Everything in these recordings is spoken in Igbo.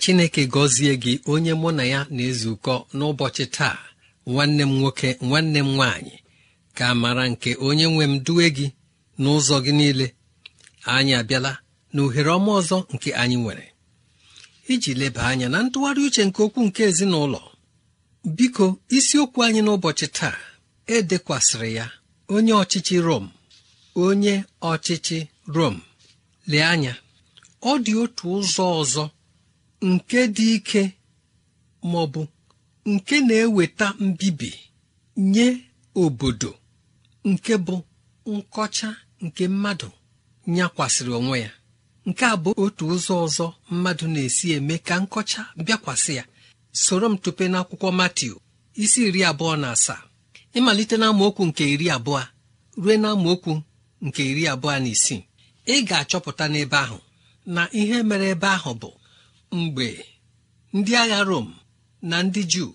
chineke gọzie gị onye mụ na ya na-ezukọ n'ụbọchị taa nwanne m nwoke nwanne m nwaanyị ka mara nke onye nwe m duwe gị n'ụzọ gị niile anyị abịala na ohere ọma ọzọ nke anyị nwere iji leba anya na ntụgharị uche nke okwu nke ezinụlọ biko isiokwu anyị n'ụbọchị taa edekwasịrị ya onye ọchịchị rom onye ọchịchị rom lee anya ọ dị otu ụzọ ọzọ nke dị ike ma ọ bụ nke na-eweta mbibi nye obodo nke bụ nkọcha nke mmadụ nyakwasịrị onwe ya nke a bụ otu ụzọ ọzọ mmadụ na-esi eme ka nkọcha bịakwasị ya soro m tupe n'akwụkwọ Matiu isi iri abụọ na asaa ịmalite n'amaokwu nke iri abụọ ruo n'amaokwu nke iri abụọ na isii ị ga-achọpụta n'ebe ahụ na ihe mere ebe ahụ bụ mgbe ndị agha rom na ndị juu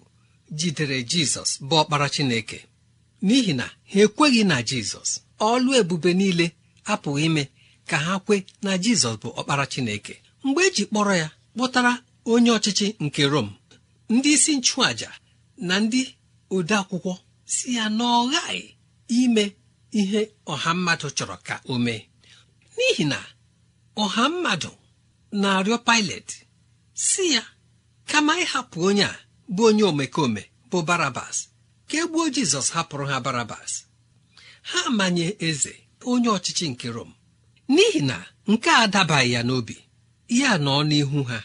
jidere jizọs bụ ọkpara chineke n'ihi na ha ekweghị na jizọs ọlụ ebube niile apụghị ime ka ha kwe na jizọs bụ ọkpara chineke mgbe eji kpọrọ ya kpọtara onye ọchịchị nke rom ndị isi nchụàja na ndị odeakwụkwọ si ya na ime ihe ọha mmadụ chọrọ ka o mee n'ihi na ọha mmadụ na-arịọ pilet si ya kama ịhapụ onye a bụ onye omekome bụ barabas ka e gbuo jizọs hapụrụ ha barabas ha manye eze onye ọchịchị nke rom n'ihi na nke a adabaghị ya n'obi ya nọ n'ihu ha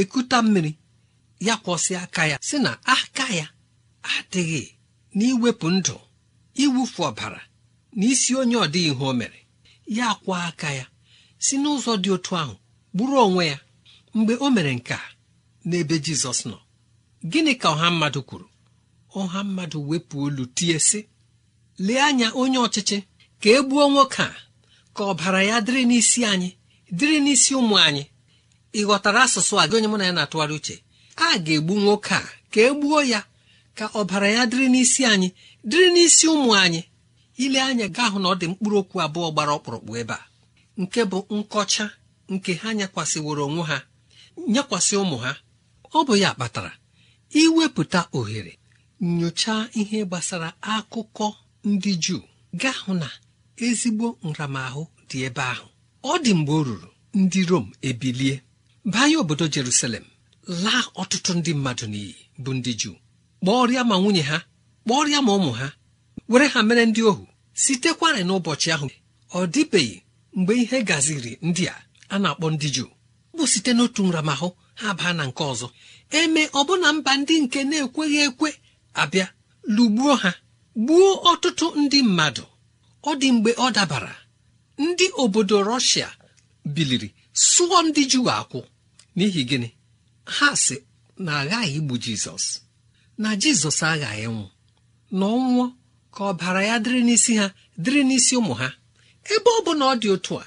ekuta mmiri ya kwọsị aka ya si na aka ah, ya adịghị iwepụ ndụ iwufu ọbara isi onye ọdịghị dịghị ihe o mere ya kwa aka ya si n'ụzọ dị otu ahụ gburu onwe ya mgbe o mere nke a n'ebe jizọs nọ gịnị ka ọha mmadụ kwuru ọha mmadụ wepụ olu tie sị lee anya onye ọchịchị ka e gbuo nwoke a ka ọbara ya dịrị n'isi anyị dịrị n'isi ụmụ anyị ị ghọtara asụsụ a gị onye mụ na ya na-atụgharị uche a ga-egbu nwoke a ka e gbuo ya ka ọbara ya dịrị n'isi anyị dịrị n'isi ụmụ anyị ile anya gaa hụ na ọ dị mkpụrụ okwu abụọ gbara ọkpụrụkpụ ebe a nke bụ nkọcha nke ha nyakwasịworo onwe ha nyekwasị ụmụ ha ọ bụ ya kpatara iwepụta ohere nyochaa ihe gbasara akụkọ ndị Juu gaa hụ na ezigbo nramahụ dị ebe ahụ ọ dị mgbe ọ ruru ndị Rom ebilie banye obodo Jerusalem laa ọtụtụ ndị mmadụ n'iyi bụ ndị Juu kpọọrịa ma nwunye ha kpọọrịa ma ụmụ ha were ha mere ndị ohu sitekwarị n'ụbọchị ahụ ọ dịbeghị mgbe ihe gaziri ndị a a na-akpọ ndị Juu bụ site n'otu nramahụ ha baa na nke ọzọ eme ọbụna mba ndị nke na-ekweghị ekwe abịa lụgbuo ha gbuo ọtụtụ ndị mmadụ ọ dị mgbe ọ dabara ndị obodo rọshia biliri sụọ ndị juu akwụ n'ihi gịnị ha sị na aghaghị igbu jizọs na jizọs aghaghị nwụ na ọnwụọ ka ọbara ya dịrị n'isi ha dịrị n'isi ụmụ ha ebe ọ bụ na ọ dị otu a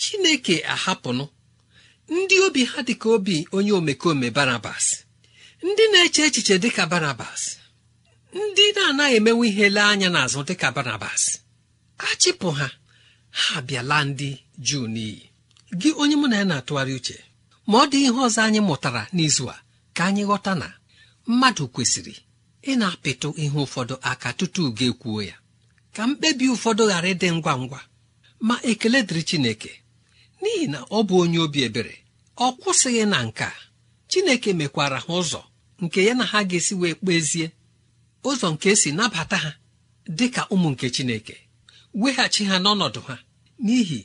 chineke ahapụnụ ndị obi ha dị ka obi onye omekome barabas ndị na-eche echiche dịka barabas ndị na-anaghị emenwe ihe lee anya n'azụ dịka barabas achịpụ ha ha abịala ndị juu n'iyi gị onye mụ na ya na-atụgharị uche ma ọ dị ihe ọzọ anyị mụtara n'izu a ka anyị ghọta na mmadụ kwesịrị ị apịtụ ihe ụfọdụ aka tutu ga ekwuo ya ka mkpebi ụfọdụ ghara ịdị ngwa ngwa ma ekele dịrị Chineke n'ihi na ọ bụ onye obi ebere ọ kwụsịghị na nka chineke mekwara ha ụzọ nke ya na ha ga-esi wee kpezie ụzọ nke esi nabata ha dị ka ụmụ nke chineke weghachi ha n'ọnọdụ ha n'ihi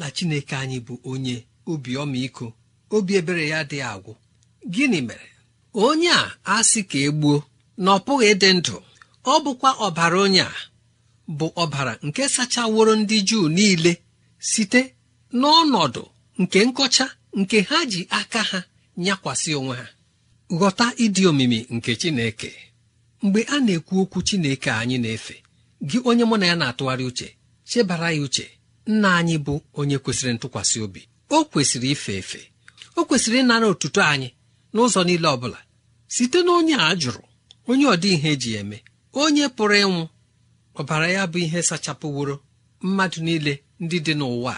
na chineke anyị bụ onye obi ọmaiko obi ebere ya dị agwụ gịnị mere onye a sị ka e gbuo na ọ pụghị ndụ ọ bụkwa ọbara onye a bụ ọbara nke sachaworo ndị juu niile site n'ọnọdụ nke nkọcha nke ha ji aka ha nyakwasị onwe ha ghọta ịdị omimi nke Chineke mgbe a na-ekwu okwu Chineke anyị na-efe gị onye mụ na ya na-atụgharị uche chebara ya uche nna anyị bụ onye kwesịrị ntụkwasị obi o kwesịrị ife efe o kwesịrị ịnara otuto anyị n'ụzọ niile ọ bụla site na onye a jụrụ onye ọ dị ihe ji eme onye pụrụ ịnwụ ọbara ya bụ ihe sachapụworo mmadụ niile ndị dị n'ụwa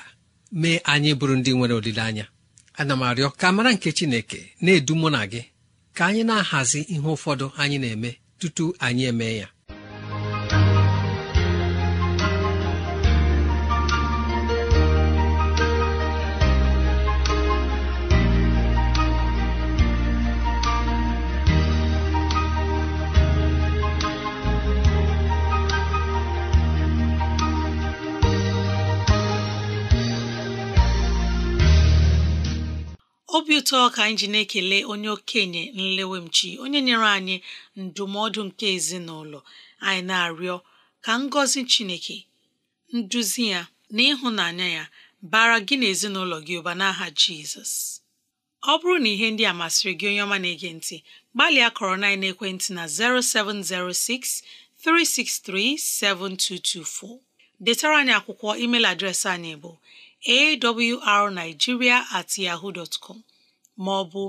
mee anyị bụrụ ndị nwere olileanya ana m arịọ ka mara nke chineke na-edu mụ na gị ka anyị na-ahazi ihe ụfọdụ anyị na-eme tutu anyị eme ya otito ọka anyị ji na-ekele onye okenye nlewemchi onye nyere anyị ndụmọdụ nke ezinụlọ anyị na-arịọ ka ngọzi Chineke nduzi ya na ịhụnanya ya bara gị na ezinụlọ gị ụba n'aha Jizọs ọ bụrụ na ihe ndị a masịrị gị onye ọma na-ege ntị gbalịa kọrọ na ekwentị na 0706 363 7224 detara anyị akwụkwọ email adreesị anyị bụ awrnigeria at yahoo dot com ma ọ bụ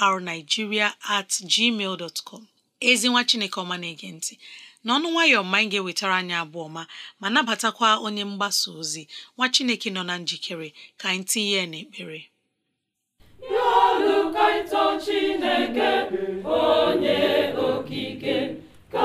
awrnigeria at gmail dot ezi nwa chineke ọma na-ege ntị n'ọnụ nwayọọ ma anyị ga-ewetara anyị abụọ ọma ma nabatakwa onye mgbasa ozi nwa chineke nọ na njikere ka anyị tinye ya n'ekpere Chineke onye okike ka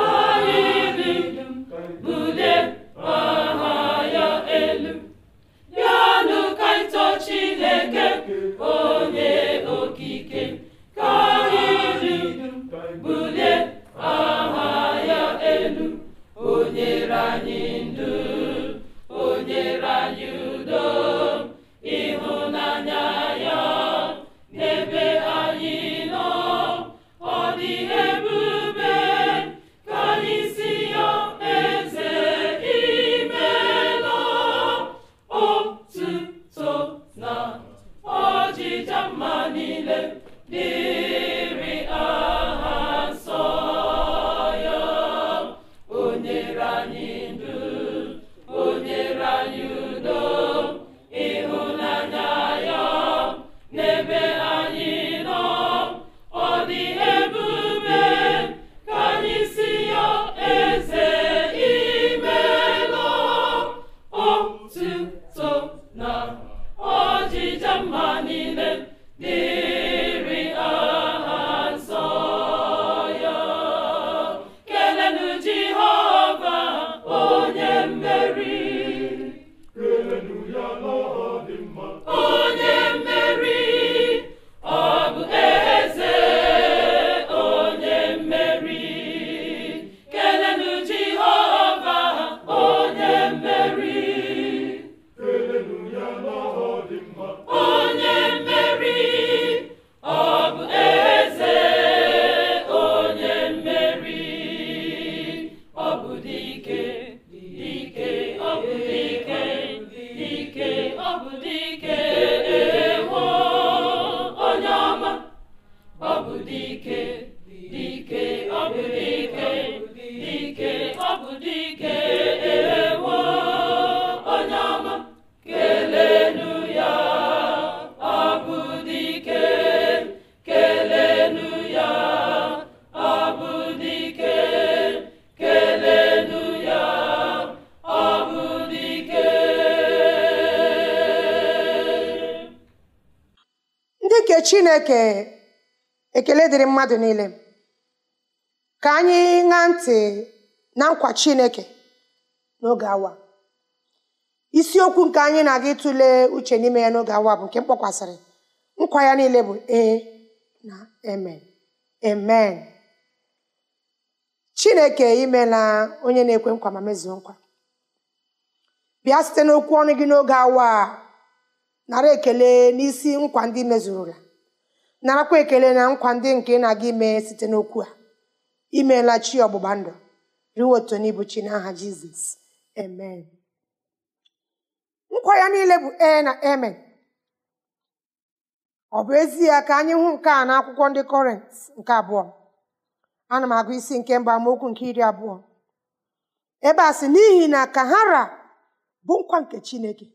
nke chineke ekele dịrị mmadụ niile ka anyị ṅaa ntị na nkwa chineke n'oge awa isiokwu nke anyị na-aga ịtụle uche n'ime ya n'oge awa bụ nke mkpọkwasịrị nkwa ya niile bụ e na amen amen chineke imela onye na-ekwe nkwa ma mezuo nkwa bịa site n'okwu ọnụ gị n'oge awa nara ekele n'isi nkwa ndị mezurula narakwa ekele na nkwa ndị nke na-aga ime site n'okwu a imeela chi ọgbụgba ndụ riwe otu n'ibu chi n'aha jizọs nkwa ya niile bụ e na eme ọ bụ ezie ka anyị hụ nke a akwụkwọ ndị kọrent nke abụọ ana m agụ isi nke mbụ amaokwu nke iri abụọ ebe a sị n'ihi na kahara bụ nkwa nke chineke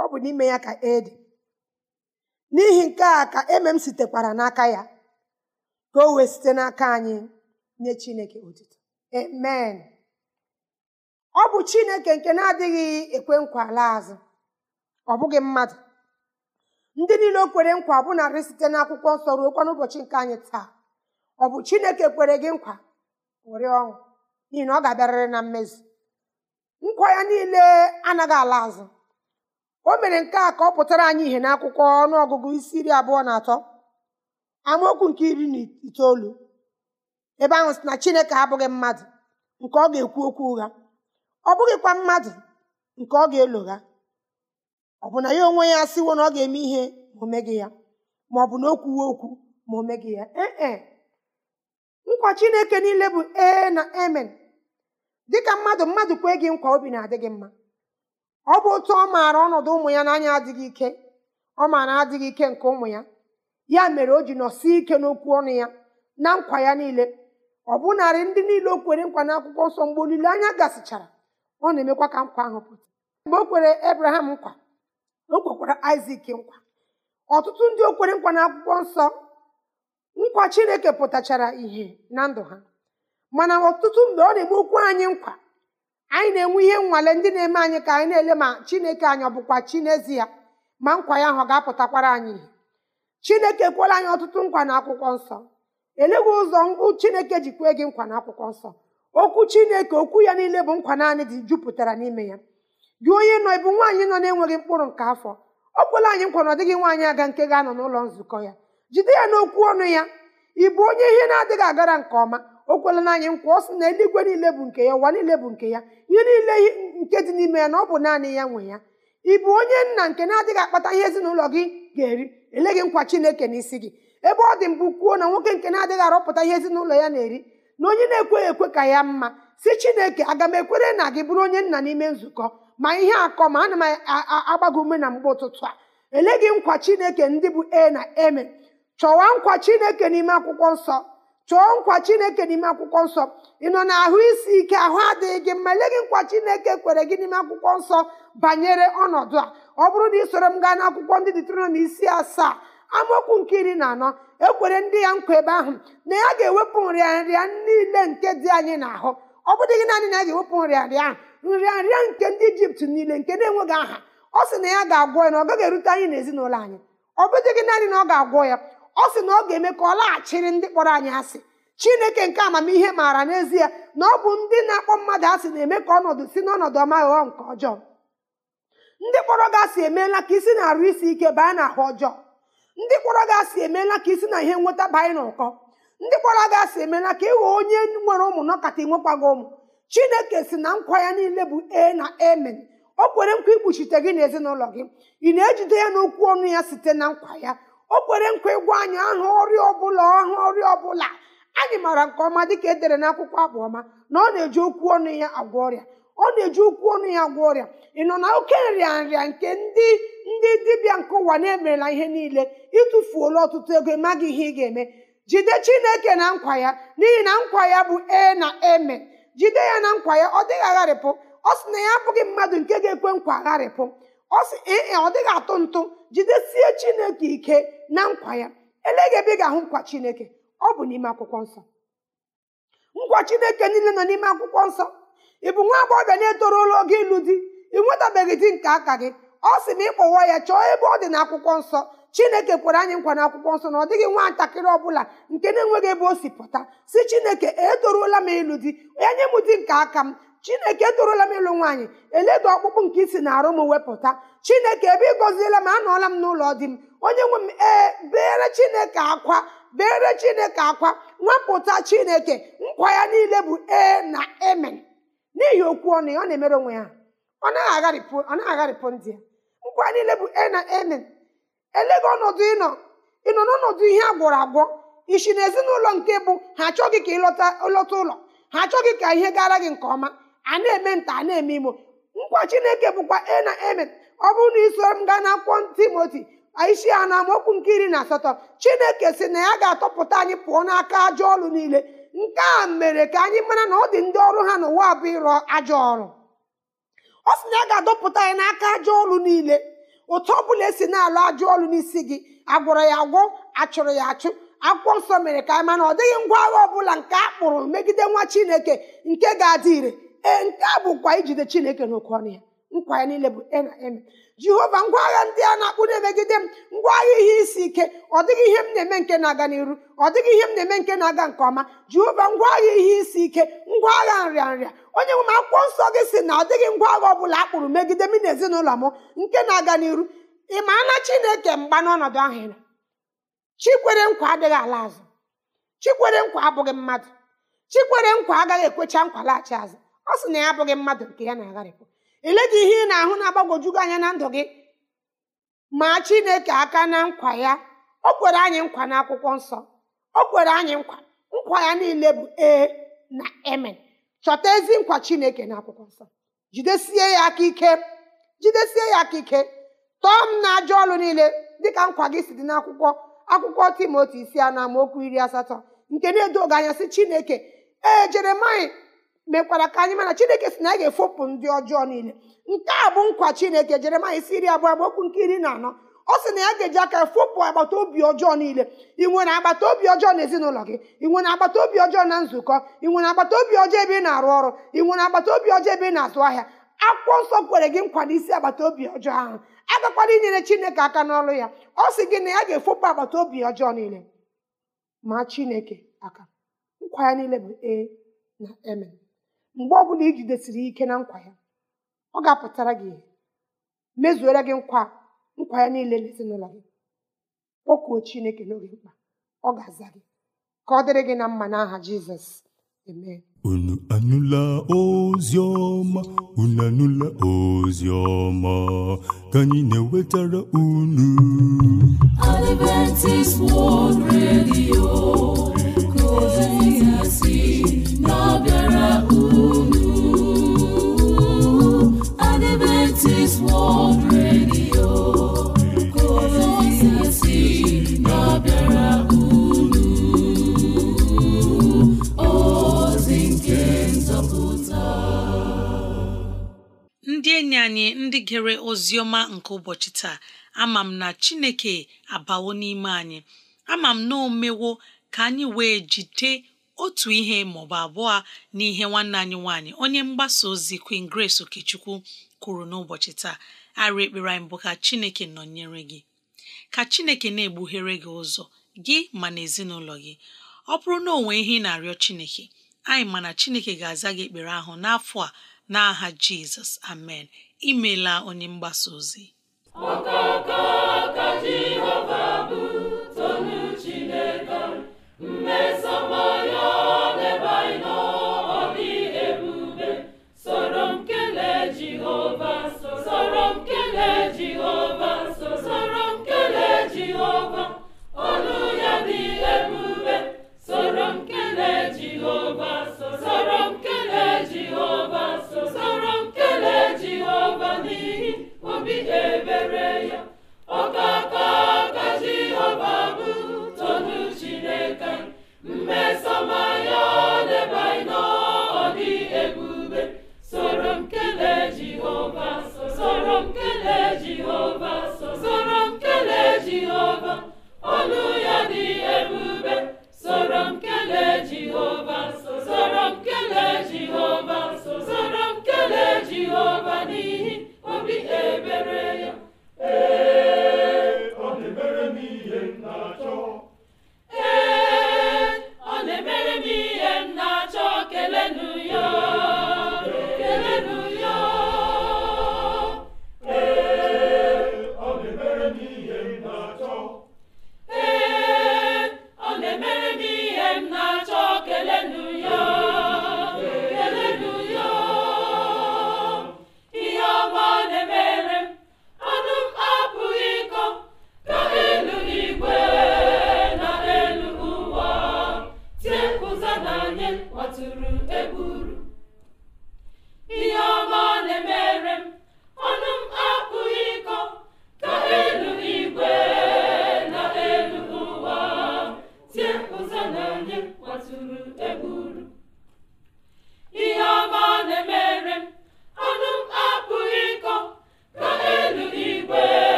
ọ bụ n'ime ya ka e dị. n'ihi nke a ka emem sitekwara n'aka ya ka o wee site n'aka anyị nye chineke otuto amen ọ bụ chineke nke na-adịghị ekwe nkwa ala azụ ọ bụghị mmadụ ndị niile o kwere nkwa ọbụnarị site n'akwụkwọ nsọ ruokwa n'ụbọchị nke anyị taa ọ bụ chineke kwere gị nkwa were ọṅụ n'ihi na ọ ga-abịarịrị na mmezu nkwa ya niile anaghị ala azụ o mere nke a ka ọ pụtara anyị ihe n'akwụkwọ ọnụọgụgụ isi iri abụọ na atọ amaokwu nke iri na itoolu ebe ahụ sị na chineke abụghị mmadụ nke ọ ga-ekwu okwu ụgha ọ bụghịkwa mmadụ nke ọ ga-elogha ọ bụ na ya onwe ya siwo na ọ ga-eme ihe ma o meghị ya ma ọ bụ na o kwuwe okwu ma o meghị ya ee nkwa chineke niile bụ ee na emen dịka mmadụ mmadụ kwee gị nkwa obi na-adị gị mma ọ bụ otu ọ maara ọnọdụ ụmụ ya n'anya adịghị ike ọ maara adịghị ike nke ụmụ ya ya mere o ji nọsie ike n'okwu ọnụ ya na nkwa ya niile ọ bụnarị narị ndị niile o kwere nkwa n'akwụkwọ nsọ mgbe olileanya gasịchara ọ na-emekwa ka nkwa ahụ pụta mgbe o kwere ebraham nkwa o kwekwara Isaac nkwa ọtụtụ ndị o kwere nkwa n'akwụkwọ nsọ nkwa Chineke pụtachara ìhè na ndụ ha mana ọtụtụ mgbe ọ na-eme okwu anyị nkwa anyị na-enwe ihe nnwale ndị na-eme anyị ka anyị na-ele ma chineke anyị ọ bụkwa chi ya ma nkwa ya ahụ ga-apụtakwara anyị chineke ekwela anyị ọtụtụ nkwa na akwụkwọ nsọ eleghị ụzọ chineke ji kwee gị nkwa na akwụkwọ nsọ okwu chineke okwu ya niile bụ nkwa naanị dị jupụtara n'ime ya gị onye nọ ịbụ nwaanyị nọ na-enweghị mkpụrụ nke afọ ọ kwela anyị nkwa na ọ dịghị nwaanyị aga nke ga-anọ n'ụlọ nzukọ ya jide ya n'okwu ọnụ ya ị bụ onye ihe na-adịghị agara nke ọma o kwela na anyị nkwa ọ sị na eluigwe niile bụ nke ya ụwa niile bụ nke ya ihe niile nke dị n'ime ya na ọ bụ naanị ya nwe ya ị bụ onye nna nke na-adịghị akpata ihe ezinụlọ gị ga-eri eleghị nkwa chineke n'isi gị ebe ọ dị mbụ kwuo na nwoke nke na-adịghị arọpụta ihe ezinụlọ ya na-eri na onye na-ekweghị ekwe ka ya mma si chineke aga m ekwere na gị bụrụ onye nna n'ime nzukọ ma ihe akọ ma ana m agbago ume na mgbe ụtụtụ a eleghị nkwa chineke ndị bụ e na eme chọwa nkwa chineke n'ime akwụkwọ nsọ chọọ nkwa chineke n'ime akwụkwọ nsọ ị nọ n'ahụ isi ike ahụ adịghị gị mma eleghị nkwa chineke kwere gị n'ime akwụkwọ nsọ banyere ọnọdụ a ọ bụrụ na ị soro m gaa n'akwụkwọ ndị Diuteronomi isi asaa amaokwu nke iri na anọ ekwere ndị ya nkwa ebe ahụ na ya ga-ewepụ nrịanrịa niile nke dị anyị n'ahụ ọ bụdịghị naanị na ya ga-ewepụ nrịa ahụ nrịa nke ndị ijipt niile nke na-enweghị aha ọ sị na ya ga-agwọ ya na ọ gaghị erute anyị n'ezinụlọ anyị ọ bụdịghị naanị na ọ ga-agwọ ya ọ sị na ọ ga-eme ka ọ laghachiri ndị kpọrọ anyị asị chineke nke amamihe maara n'ezie na ọ bụ ndị na-akpọ mmadụ asị na-eme ka ọnọdụ si n'ọnọdụ ọma ghọọ nke ọjọọ ndị kpọrọ gị asị emeela ka isi na-arụ isi ike baa na ahụ ọjọọ ndị kpọrọ gị asị emeela ka isi na ihe nweta baa na ụkọ ndị kpọrọ gị asị emeela ka ịghọ onye nwere ụmụ nọkata ịnwekwaghị ụmụ chineke si na nkwa ya niile bụ e na emen o kwere nkwa ikpuchite gị na ezinụlọ gị ị na-ejide ya n'okwu ọnụ ya site na nkwa ya o kwere nkwa ịgwa anyị aha ọrịa ọbụla aha ọrịa ọbụla anyị maara nke ọma dịka e akwụkwọ n'akwụkwọ ọma na ọ na-eji okwu ọnụ ya agwọ ọrịa ọ na-eji okwu ọnụ ya agwọ ọrịa ị nọ na oke nrịanrịa nke ndị ndị dibịa nke ụwa na-emerela ihe niile ịtụfuola ọtụtụ ego ịmaghị ihe ị ga-eme jide chineke na nkwa ya n'ihi na nkwa ya bụ e na eme jide ya na nkwa ya ọ dịghị agharịpụ ọ sị na ya abụghị mmadụ nke ga-ekwe nkwa agharịpụ ọ sị ee ọ dịghị atụ ntụ jidesie chineke ike na nkwa ya eleghị ebe ị ga-ahụ nkwa chineke ọ bụ n'ime akwụkwọ nsọ nkwa chineke niile nọ n'ime akwụkwọ nsọ ị bụ nwa agbọghọ na-etorola oge ịlụ di ị nwetabeghị di nke aka gị ọ sị na ịkpọwa ya chọọ ebe ọ dị na akwụkwọ nsọ chineke kwere anyị nkwa n'akwụkwọ nsọ na ọ dịghị ọ bụla nke na-enweghị ebe o si pụta si chineke etoruola m ịlụ di onye nye di nke aka m chineke tụrụla m ịlụ nwaanyị eledo ọkpụkpụ nke isi na arụ m wepụta chineke ebe ị gọziela m anọọla m n'ụlọ di m onye nwe m ee bere chineke akwa bere chineke akwa nwapụta chineke nkwa ya niile bụ ee na emen n'ihi okwu ọnụ ya ọ na-emere onwe ya ọ naghị agharịpụ ndị ya nkwa niile bụ ee na emen elega ọnọdụ ịnọ ịnọ n'ọnọdụ ihe agwọrọ agwọ isi na ezinụlọ nke bụ ha achọghị ka ịlọta ụlọ ha achọghị ka ihe gara gị nke ọma a na-eme nta a na-eme imo nkwa chineke bụkwa e na eme ọ bụrụ na isoro m gaa n'akwụkwọ akwụkwọ timoti isi a na amaokwu nke iri na asatọ chineke si na ya ga-atọpụta anyị pụọ n'aka ajọ ọrụ niile nke a mere ka anyị mara na ọ dị ndị ọrụ ha n'ụwa bụ ịrọ ajọ ọrụ ọ sị na ya ga-adọpụta anyị n'aka ajọ ọrụ niile ụtụ ọ bụla esi na-alụ ajọ ọrụ n'isi gị agwọrọ ya agwọ achụrụ ya achụ akwụkwọ nsọ mere ka anyị ọ dịghị ngwa agha ọbụla nke a kpụrụ megide nwa chineke nke ga-adị ire ee nke a bụkwa ijide chineke n'oke ọnụ ya nkwa ya niile bụ ena eme jehova ngwa agha ndị a na-akpụ na-emegide m ngwa agha ihe isi ike ọ dịghị ihe m na-eme nke na-aga n'iru ọ dịghị ihe m na-eme nke na-aga nke ọma jehova ngwa agha ihe isi ike ngwa agha nrịa nrịa onye nwe m akwụkwọ nsọ gị si na ọ dịghị ngwa agha ọ bụla akpụrụ megide m na ezinụlọ m nke na-aga n'iru ị ma na chineke mgba n'ọnọdụ ahụ ịnọ chikwere nkwa adịghị ala azụ chikwere nkwa abụghị mmadụ chikwere nkwa agaghị ekwecha nkwa laghachi azụ ọ sị na ya abụghị mmadụ nke ya na-agharịpụ elegị ihe ị na-ahụ na-agbagwoju anya na ndụ gị ma chineke aka na nkwa ya o kwere anyị nkwa na akwụkwọ nsọ o kwere anyị nkwa nkwa ya niile bụ ee na emen chọta ezi nkwa chineke na akwụkwọ nsọ jidesie ya aka ike jidesie ya aka ike tọọ m na ajọ ọlụ niile dịka nkwa gị si dị n'akwụkwọ akwụkwọ timoti isi a na amaokwu iri asatọ nke na-edoga anya si chineke ee jeremai mekwara ka anyị mana chineke si na ya ga-efopụ ndị ọjọọ niile nke a bụ nkwa chineke jeremaya isi iri abụọ amaokwu nke iri na anọ ọ sị na ya ga-eji aka fopụ agbata obi ọjọọ niile ị nwere agbata obi ọjọọ n'ezinụlọ gị ị nwere agbata obi ọjọọ na nzukọ ị nwere agbata obi ọjọọ ebe ị na-arụ ọrụ ị nwere agbata obi ọjọọ ebe ị na-azụ ahịa akwụkwọ nsọ kwere gị nkwado isi agbata obi ọjọọ ahụ agakwala inyere chineke aka n'ọrụ ya ọ sị gị na ya ga-efopụ agbata obi ọjọọ niile ma chineke aka nkwa ya niile bụ ee na mgbe ọ bụla ijidesiri ike na nkwa ya ọ ga-apụtara gị mezuere gị nkwa nkwa ya niile n'ezinụlọ gị kpọkuo Chineke n'oge mkpa ọ ga-aza gị ka ọ dịrị gị na mma n'aha Jizọs unu anụla ozi ọma unu anụla ozi ọma ka anyị na-ewetara unu Adventist World Radio ọma nke ụbọchị taa ama m na chineke abawo n'ime anyị ama m na omewo ka anyị wee jide otu ihe maọbụ abụọ n'ihe nwanne anyị nwaanyị onye mgbasa ozi Queen Grace Okechukwu kwuru n'ụbọchị taa arụ ekpere anyị bụ ka chineke nọnyere gị ka chineke na-egbughere gị ụzọ gị ma na ezinụlọ gị ọ bụrụ na onwe ihe ị na-arịọ chineke anyị mana chineke ga-aza gị ekpere ahụ n'afọ a n'aha Jizọs amen imela onye mgbasa ozi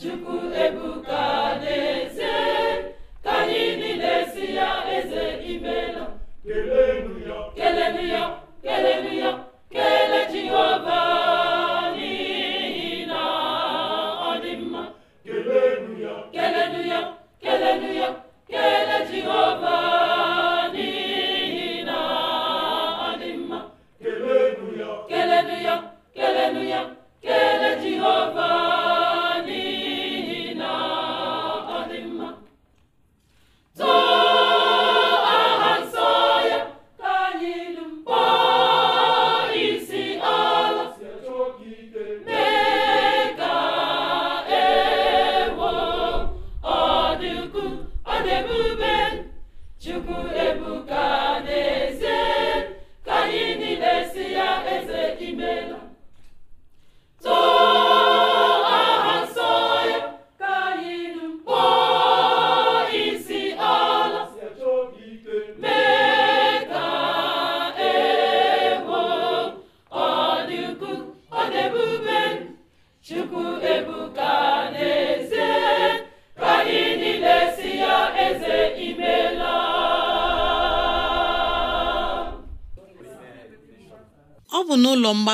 Chukwu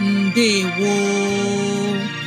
woo!